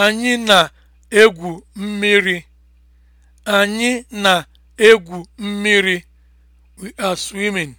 Anyị na-egwu mmiri. Anyị na We are swimming.